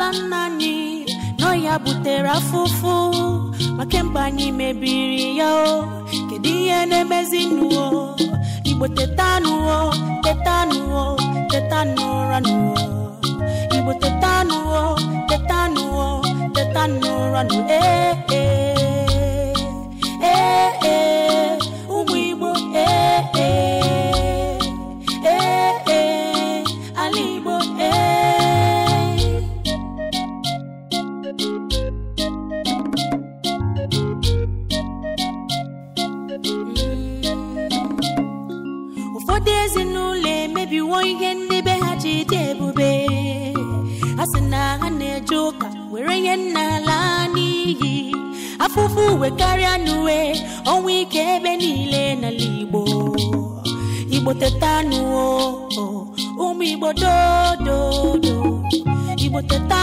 ala nna anyị nọ ya butere afụfụ ma kemgbe anyị mebiri ya o kedu ihe na-emezi nuo igbo tetanụo tetanụo tetanụ ụra nuo igbo tetanụo tetanụo tetanụ ụra nuo ee ụfọdụ ezinụlọ emebiwo ihe ndị be ha ji dị ebube ha sị na ha na-eje ụka were ihe nna laa n'iyi afụfụ uwe karịa n'uwe ọnwa ike ebe niile n'ala Igbo Igbo teta ụmụ Igbo dododo Igbo teta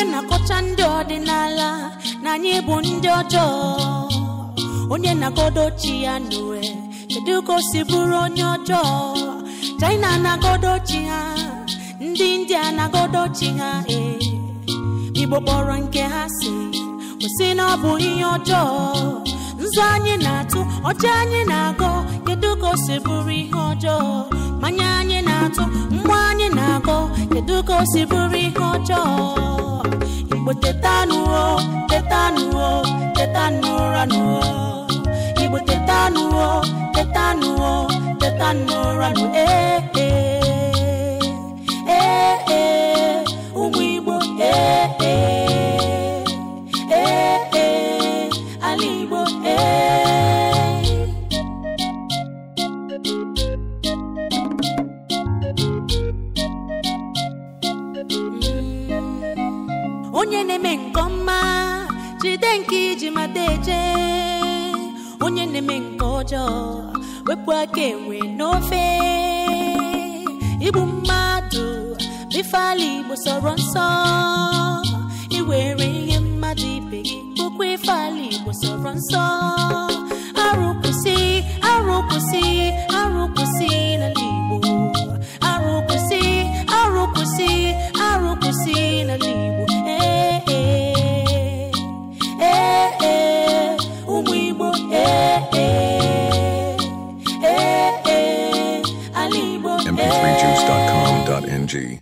onye na-akọcha ndị ọdịnala na anyị bụ ndị ọjọọ onye na-agodo chi ya n'owe kedu ka o si bụrụ onye ọjọọ chaina na-agodo chi ha ndị india na-agodo chi ha e. igbo kpọrọ nke ha si kwụsị na ọ bụ ihe ọjọọ nzu anyị na-atụ ọcha anyị na-agọ kedu ka o si bụrụ ihe ọjọọ mmanya anyị na-atụ mgbe anyị na akọ kedu ka o si bụrụ ihe ọjọọ igbo tetanụo tetanụo tetanụ ụra igbo tetanụo tetanụo tetanụ ụra onye na-eme nke ọma jide nke iji mata eje onye na-eme nke ọjọọ wepụ aka enwe n'ofe igbu mmadụ bifala igbo sọrọ nsọ technology